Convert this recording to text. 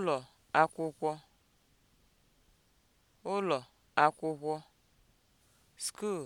ụlọ akwụkwọ ụlọ akwụkwọ (school)